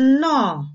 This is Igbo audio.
nnọọ